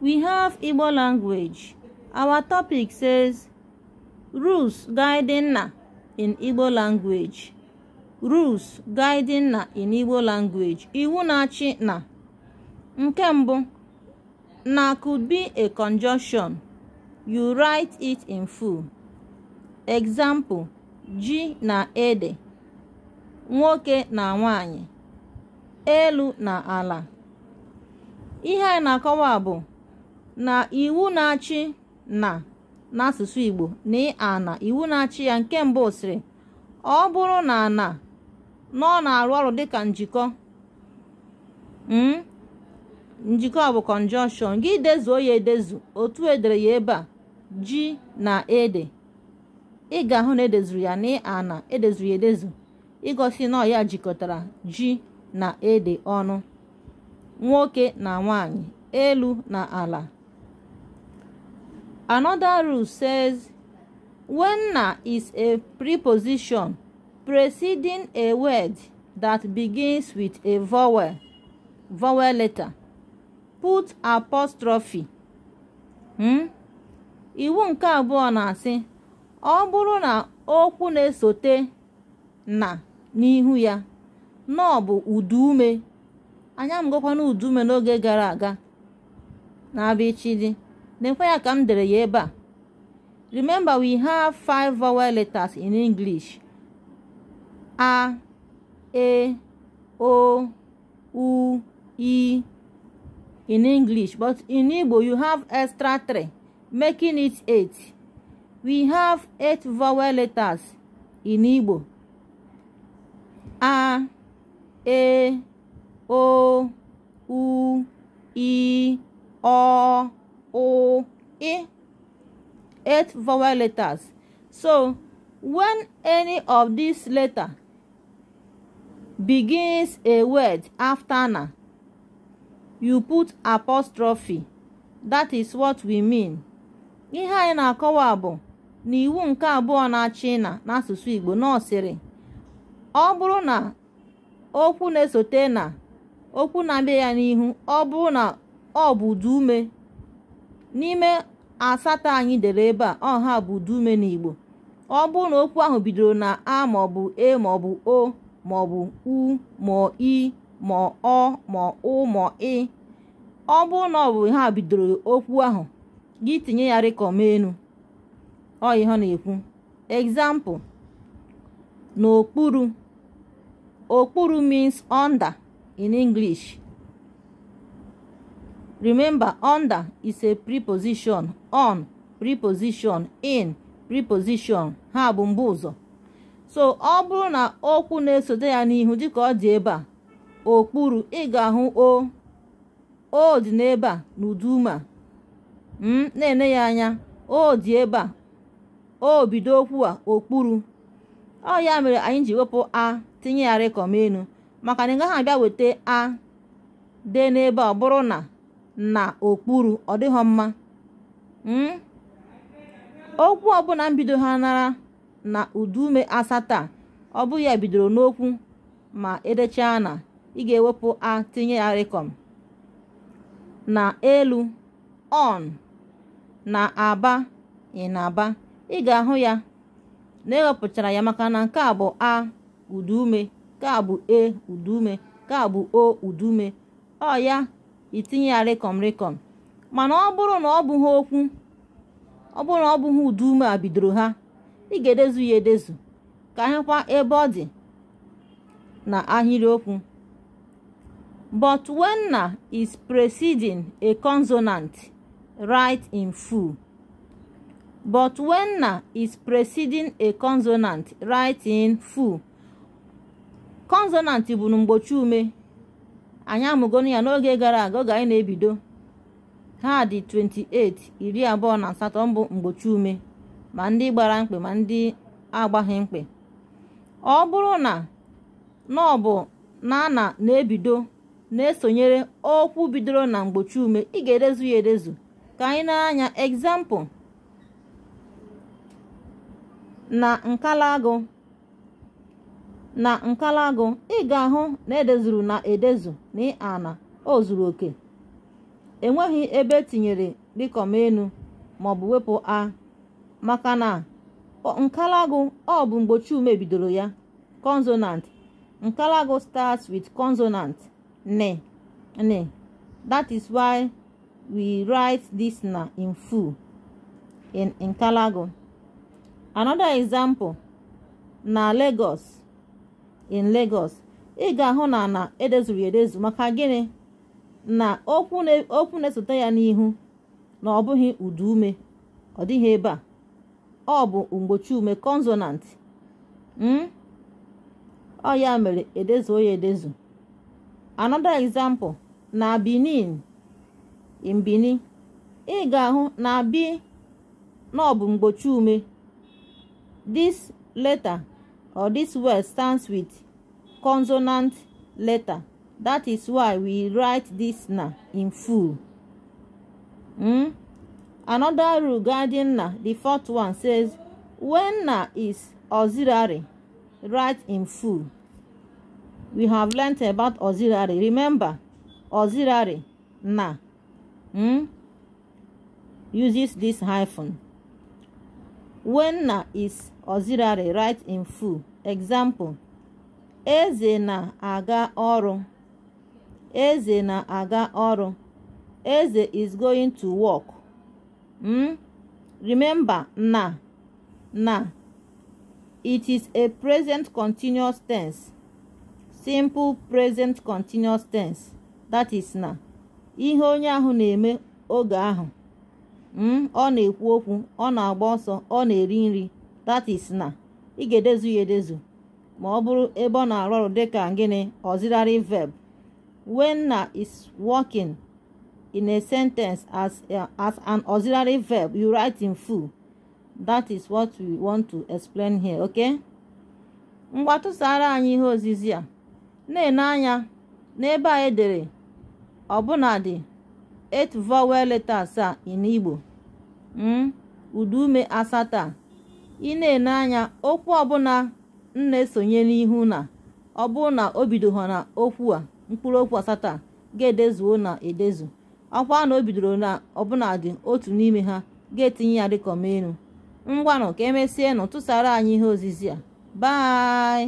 We have Igbo language. Our topic says Rules Guiding Na in Igbo language. Rules Guiding Na in Igbo language. Iwu na-achị na. Nke mbụ, na could be a conjunction. You write it in full. Example, ji na ede. Nwoke na nwanyị. Elu na ala. Ihe a na-akọwa bụ na iwu na-achị na n'asụsụ Igbo na e ana iwu na-achị ya nke mbụ sịrị ọ bụrụ na na ọ na-arụ ọrụ dịka njikọ hmm, njikọ bụ conjunction gị dezuo ya edezu otu edere ya ebe a ji na ede ị ga-ahụ na edezuru ya na e ana edezuru ya edezu ịgosi na ya jikọtara ji na ede ọnụ nwoke na nwaanyị elu na ala Another rule says when na is a preposition preceding a word that begins with a vowel, vowel letter, put apostrophe. Hmm? Iwu nke abụọ na-asị ọ bụrụ na okwu na-esote na n'ihu ya na udume uduume anya m uduume n'oge gara aga na abichidi. Then when I come to the Yeba, remember we have five vowel letters in English. A, E, O, U, I in English. But in Igbo, you have extra three, making it eight. We have eight vowel letters in Igbo. A, E, O, U, I, O, O, E. Eight vowel letters. So, when any of these letters begins a word after na, you put apostrophe. That is what we mean. Ihe anyị na-akọwa bụ n'iwu nke abụọ na-achị na n'asụsụ Igbo nọsịrị ọ bụrụ na okwu na-esote na okwu na-abịa ya n'ihu ọ bụrụ na ọ bụ dume. n'ime asatọ anyị dere ebe a ọha bụ dume n'Igbo ọ bụrụ na okwu ahụ bidoro na a maọbụ e maọbụ o maọbụ u ma i ma ọ ma ụ ma ị e, ọ bụrụ na ọ bụ ha bidoro okwu ahụ gị tinye ya rịkọma enu na-ekwu example n'okpuru okpuru means under in English Remember, under is a preposition, on preposition, in preposition, ha bụ mgbe ụzọ. So ọ bụrụ na okwu na-esote ya n'ihu dịka ọ dị ebe a, okpuru ị ga-ahụ o, o dị n'ebe a n'ụdị m hmm, na-ene ya anya, o dị ebe a, o bido okwu a okpuru. Ọ ya mere anyị ji wepụ a tinye ya rịkọm maka na ị gaghị abịa weta a dee n'ebe ọ bụrụ na na okpuru ọ dịghọ mma hmm? okwu ọbụla mbido ha nara na udume asatọ ọ bụ ya bidoro n'okwu ma edechaa na ị ga-ewepụ a tinye ya rekọm na elu on na aba ịnaba ị ga-ahụ ya na ewepụchara ya maka na nke a bụ a udume nke a bụ e udume nke a bụ o udume ọ ya itinye ya rịkọm rịkọm mana ọ bụrụ na ọ bụghị okwu ọ bụrụ na ọ bụghị udu ume a bidoro ha ị ga-edezu ya edezu ka hekwa ebe ọ dị na ahịrịokwu but when na is preceding a consonant write in full but when na is preceding a consonant write in full consonant bụ na mgbochi ume anyị amụgonu ya n'oge gara aga oge anyị na-ebido ha dị 28 iri abụọ na asatọ mbụ mgbochi ume ma ndị gbara mkpe ma ndị agbaghị mkpe ọ bụrụ na na ọ bụ na a na na-ebido na-esonyere okwu bidoro na mgbochi ume ị ga edezu ya edezu ka anyị na-anya egzampụl na nkalagụ na nkalagụ ị ga-ahụ na edezuru na edezu na ana o zuru oke enweghị ebe etinyere dịkọm enu maọbụ wepụ a maka na nkalagụ ọ bụ mgbochi ume bidoro ya consonant nkalagụ starts with consonant ne ne that is why we write this na in full in nkalago another example na Lagos in Lagos ị ga-ahụ na na edezuru edezu maka gịnị na okwu na-esote ya n'ihu na ọ bụghị udu ume ọ dịghị ebe a ọ bụ mgbochi ume consonant hmm? ọ ya mere edezuo ya edezu anọdụ example na Benin in ị ga-ahụ na bi na ọ bụ mgbochi ume dis leta. or this word stands with consonant letter that is why we write this na in full mm? another rule guarding na the fourth one says when na is auxiliary write in full we have learnt about auxiliary remember auxiliary na mm, uses this hyphen When is auxiliary right in full. Example: Eze na-aga ọrụ. Eze na-aga ọrụ. Eze is going to work. Mm? Remember na na it is a present continuous tense. Simple present continuous tense. That is na. Ihe onye ahụ na-eme oge ahụ. Hmm? ọ na-ekwu okwu ọ na-agba ọsọ ọ na-eri nri tatis na ị ga-edezu ya edezu ma ọ bụrụ ebe ọ na-arụ ọrụ dịka gịnị auxiliary verb na is working in a sentence as, uh, as an auxiliary verb you write in full that is what we want to explain here ok? ngwa anyị ihe ozizi a na-ene anya n'ebe a edere ọbụnadị eight vowel letters a in Igbo Hmm? udu ume asatọ a ị na-ene anya okwu ọbụla m na-esonye n'ihu na ọ bụrụ na na okwu a mkpụrụ okwu asatọ ga-edezuo na edezu ọkwa na o na na dị otu n'ime ha ga-etinye ya dịka ọmaelu ngwanụ ka emesie nụ tụsara anyị ihe ozizi a bye